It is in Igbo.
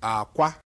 akwa